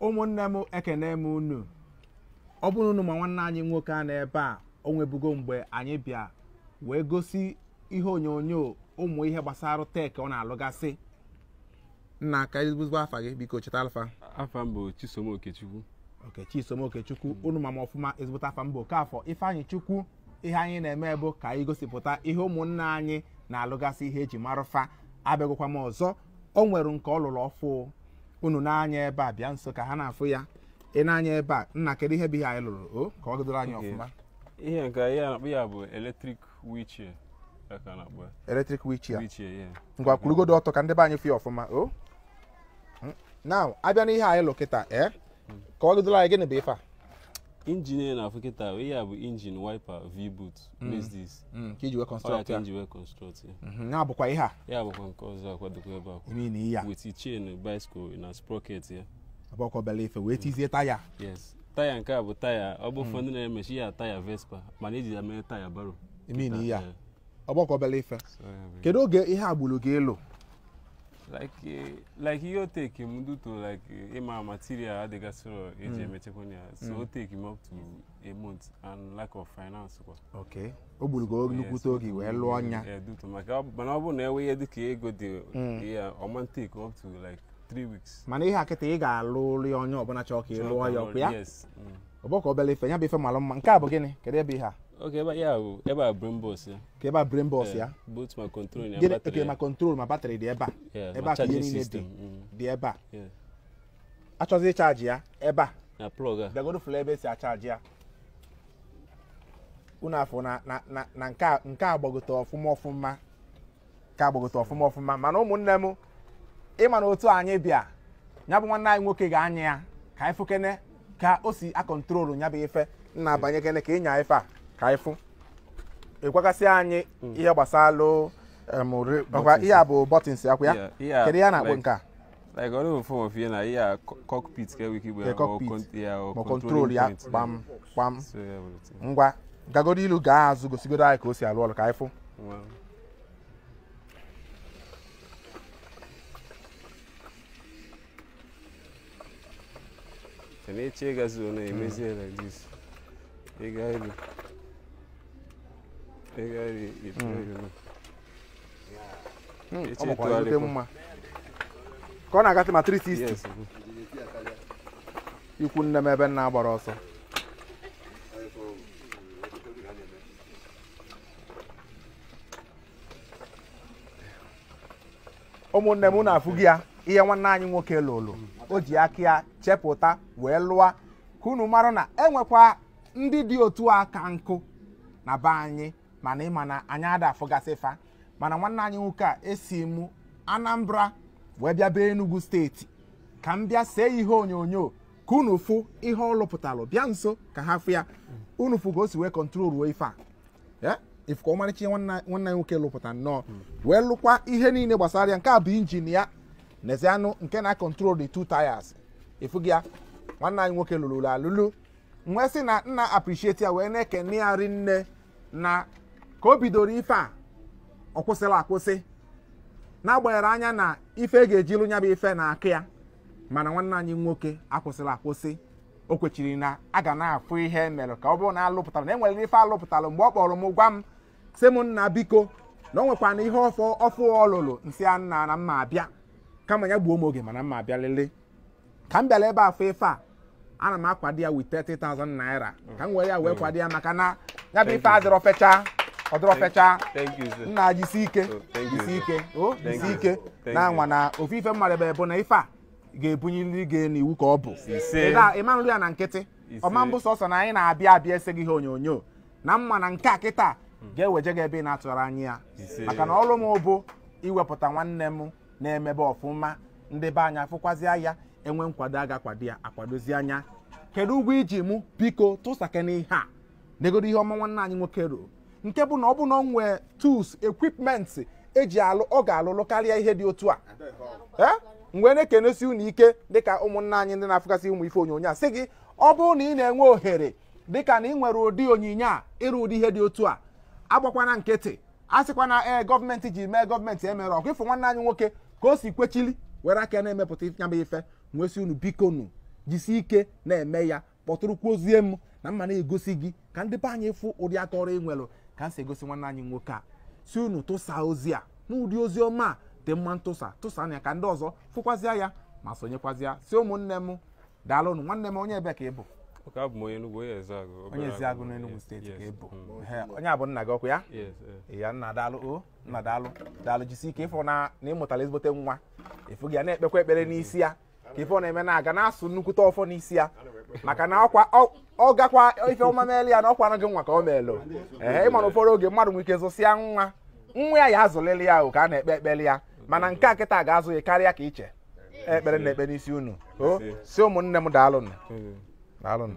ụmụnne m ekene m unu ọ bụrụ na ma nwanne anyị nwoke a n'ebe a o nwebugo mgbe anyị bịa wee gosi ihe onyonyo ụmụ ihe gbasara tek ọ na-alụgasị nna ka ezigbo afa gị biko cheta alfa afa mbụ chisom okechukwu okechukwu mm. unu ma ma ọfụma ezigbo afa mbụ bụ okafọ ifeanyị chukwu ihe anyị na-eme bụ ka anyị gosipụta ihe ụmụnna anyị na-alụgasị ihe eji marụfa abịagokwa m ọzọ o nwere nke ọ lụrụ ọfụ unu na-anya ebe a bịa nso ka ha na-afụ ya ị na-anya ebe a nna kedu ihe bụ ihe anyị lụrụ o ka ọ gụdoro anyị ọfụma ihe nke ihe na-akpọ ya bụ eletrik wiche eletrik ya. ngwa kwurugodo ọtọ ka ndị be anyị fụ ya ọfụma o hmm. na abịa n'ihe anyị lụ kịta ee eh? hmm. ka ọ gụdoro anyị gịnị bụ ife a injin na afụ kịta ihe a bụ injin wiper v-boot mm. mm, ka iji e e wee construct ya ya mm-hmm, bụkwa ihe a ya bụkwa nke ọzọ akwadokwa ebe a na ihe a weti chain bicycle na sprocket ya abọkọbala efe wee tizie mm. taya yes taya nke a bụ taya ọ bụ ụfọdụ na-emechi ya taya vespa mana eji ya mee taya baro eme na ihe a ọgbakọbala ife kedu oge ihe a gburu gị elu like eh, like ihe o take m to like eh, ịma material adịgasịrọ eji mm. emechekwa ya mm. so o take m up to a month and lack of finance kwa okay o gburu gị nnukwute oge wee lụọ nya eh, maka mana ọ bụrụ na enwe ihe dịka ego dị mm. ya ọma take up to like three weeks mana ihe akịta ị ga-alụli onye ọbụla chọọ ka ị lụọ ya ọkwa ya ọbọ ka obele ife ya bụ ife malụ mma nke a bụ gịnị kedu ebe ihe a Okay, ebe ya bụ ebe a brain box ya. Ka ebe a brain box ya. Both my control na battery. Okay, my control ma battery dị ebe a. Ebe a ka ihe niile dị dị ebe a. Achọzi ịchaji ya ebe a. Na plug ah. a. Bịagodo fụlụ ebe esi achaji ya. Unu afụ na na na na nke a nke a gbagote ọfụma ọfụma ka agbagote ọfụma ọfụma mana ụmụnne m ịma na otu anyị bịa ya bụ nwanne anyị nwoke ga-anya ya ka anyị fụkene ka o si akọntrolu ya bụ ife na-abanye kene ka ịnya ife a ka ịfụ ịgwagasị anyị ihe gbasalụ ihe a bụ bọtins akwụ ya kedu ya na-akpọ nke a like all of form of here na here cockpit ke wiki we cockpit ma control ya kpam kpam ngwa gagodo ilu ga azụ gosigodo anyị ka o si alụ ọrụ ka anyị fụ na-eche na-emezi like this ịga elu pegar e, e pega. Hum. tem uma. Ka ọ na-agasị ma ikwu nne m ebe nna gbara ọsọ ụmụnne m na-afụghị ya ihe nwanne anyị nwoke lụlụ o ji aka ya chepụta wee lụọ ka unu mara na enwekwa ndị dị otu a ka nkụ na be anyị mana ịma na anyị ada fa mana nwanne anyị nwoke a esi mụ anambra wee bịa bee enugu steeti ka m bịa see ihe onyonyo ka unu fụ ihe ọ lụpụtalụ bịa nso ka ha fụ ya unu fụ ka o si wee kọntrol ruo ife a ifuka ọmarịcha nwanne ya nwoke lụpụta nnọọ wee lụkwa ihe niile gbasara ya nke a bụ injin ya nezianụ nke na kọntrol the two tires ịfụgị ya nwanne anyị nwoke lụrụ alụlụ nwee sị na nna aprishieti ya wee na-ekene ya rinne na ka o bidoro ife a ọ kwụsịla akwụsị n'agbanyeghị anya na ife e ga eji nya bụ ife na-akụ ya mana nwanne anyị nwoke akwụsịla akwụsị o kwechiri na a ga na-afụ ihe mere ka ọ bụrụ na alụpụtara na enwere ife alụpụtara mgbe ọ kpọrọ m gwa m sị m nna biko na ọ nwekwa na ihe ọfọ ọfụ ọlụlụ nsị a nna na mma abịa kama ya gbuo m oge mana mma abịa lele ka m bịara ebe afọ ife a ana m akwado ya wit 30,000 naira ka m were ya wee kwado ya maka na ya bụ ife adịrọ fechaa ọdụrọfecha nna isi ike oh, isi ike o oh, oh, isi ike na anwa na ofu ife mmadụ ebe bụ na ife a ga nri gị n'iwu ka ọ bụ ịma nri ya na nkịtị ọma mbụ sọsọ na anyị na-abịa abịa ese gị ihe onyonyo na mma na nke a kịta ga-eweje gị ebe ị na atụrụ anya ya maka na ọrụ m bụ iwepụta nwanne m na-emebe ọfụma ndị be anya fụkwazi ya enwe nkwado aga kwado ya akwadozi anya kedu ụgwọ iji mụ biko tụsake n'ihe a negodo ihe ọma nwanne anyị nwoke ruo nke bụ na ọ bụ na nwee tools equipment eji alụ ọ ga-alụlụ karịa ihe dị otu a eh? mgbe na-ekenesi unu ike dịka ụmụnna anyị ndị na-afụgasị ụmụ ife onyonyo a sị gị ọ bụrụ na ị na-enwe ohere dịka na ị nwere ụdị onyinye a ịrụ ụdị ihe dị otu a agbakwana nkịtị a sịkwa na ee eh, gọọmenti ji mee gọọmenti emere ọkụ ịfụ nwanne anyị nwoke ka o si kwechili were aka na-emepụta ịnyaba ife nwesị unu biko nu jisie ike na-eme ya kpọtụrụkwuo ozie m na mma na-egosi gị ka ndị be anyị fụ ụdị aka ọrụ ị ka m si egosi nwanne anyị nwoke a si unu tụsa ozi a n'ụdị ozi ọma dị mma ntụsa tụsa anya ka ndị ọzọ fụkwazịa ya ma sonyekwazịa si ụmụnne m daalụ nụ nwanne m onye ebe ka ị bụ onye eziagụ Enugwu steeti ka ị bụ mm. onye a bụ nna gị ọkụ ya ya nna daalụ o nna daalụ daalụ jisi ike ịfọ na ịmụtala ezigbote nwa efu gị ya na-ekpekwa ekpere n'isi ya ka ịfọ na-eme na-aga na-asụ nnukwute ọfọ n'isi ya maka na ọ gakwa ife ọma meele ya na ọkwa anaghị nwa ka ọ meelu ee ịma na ụfọdụ oge mmadụ nwere ike zụsịa nwa nwa ya ya azụlili ya ahụ ka a na-ekpe ekpeli ya mana nke a nkịta ga-azụ ya karịa ka iche ekpere na-ekpe n'isi unu o si ụmụnne m daalụnụ daalụnụ